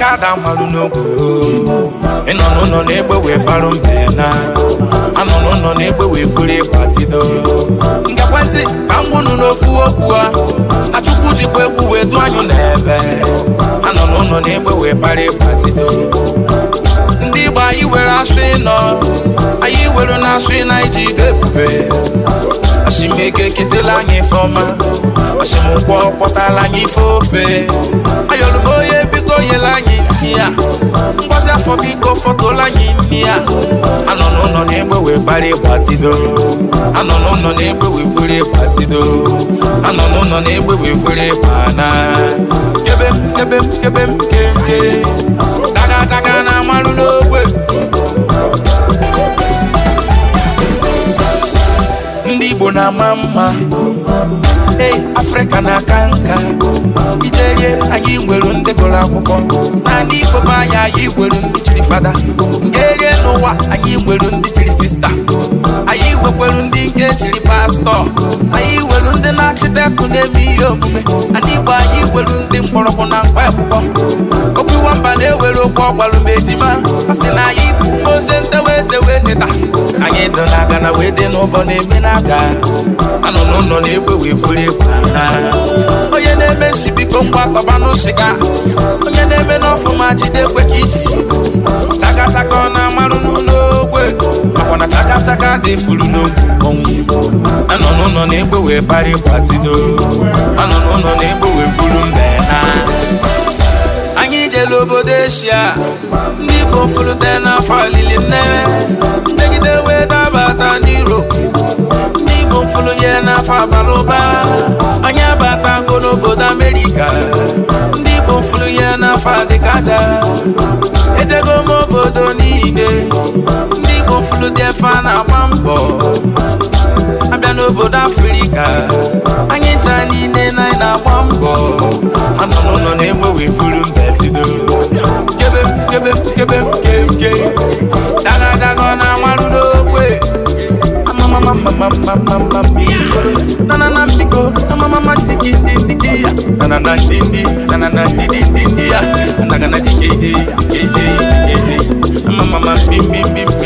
kada malụ n'ogwe ịnọ n'ụlọ na-egbe wee barụ mbe na anọ n'ụlọ na-egbe wee buru ịgbatido nke ekwentị ka m gwụnụ n'ofu okwu a achụkwu jikwa egwu wee du anyụ n'ebe anọ n'ụlọ na-egbe wee bara ịgbatido ndị Igbo anyị were asụ ịnọ anyị were na asụ ịna iji ide ebube asimego eketela anyị ife ọma asimụkwọ kpọtala anyị ife ofe ayọlụbo fọtụla anyị imi ya anọ n'ụlọ na-egbe wee anọ n'ụlọ na-egbe wee anọ n'ụlọ na-egbe wee fere ịgbana kebe m kebe m kebe na amalụ n'ogbe ndị Igbo na-ama mma ei afrịka na-aka nka iterie anyị nwere ndị gụrụ akwụkwọ na ndị ikom anyị anyị nwere ndị chiri fada nke erie n'ụwa anyị nwere ndị nwekwelu ndị nke chiri pastọ anyị welu ndị na-achịtekụ na-eme ihe omume ndị Igbo anyị welu ndị mkpọrọgwụ na mkpa akwụkwọ okwu nwamba na-ewere okwu ọgbalụ ma ejima a na anyị bụ ozi ntewa eze wee neta anyị dị na aga na wee dị n'ụbọ na-eme na aga anọ n'ụlọ na-egwe wee furu egwu onye na-eme nsibiko biko kọba n'ụsịga onye na-eme n'ọfụma jide kwe ka iji chakachaka ọ na-amarụ n'ụlọ Chaka dị furu n'oge anọ n'ụlọ na-egbe wee bari gbatido anọ n'ụlọ na-egbe wee buru mbe ha. anyị jere obodo eshia ndị dị na n'afọ alili mmewe megide wee dabata n'iro ndị Igbo furu ya n'afọ abalị ụba anyị abatago n'obodo amerika ndị Igbo furu ya n'afọ adịkaja ejego m obodo niile ndị gofulu dị efe a na-agba mbọ abịa n'obodo afrịka anyị taa niile na anyị na-agba mbọ anụnụnụ na-egbe wee buru mbetido kebe m na amarụ n'okwe me,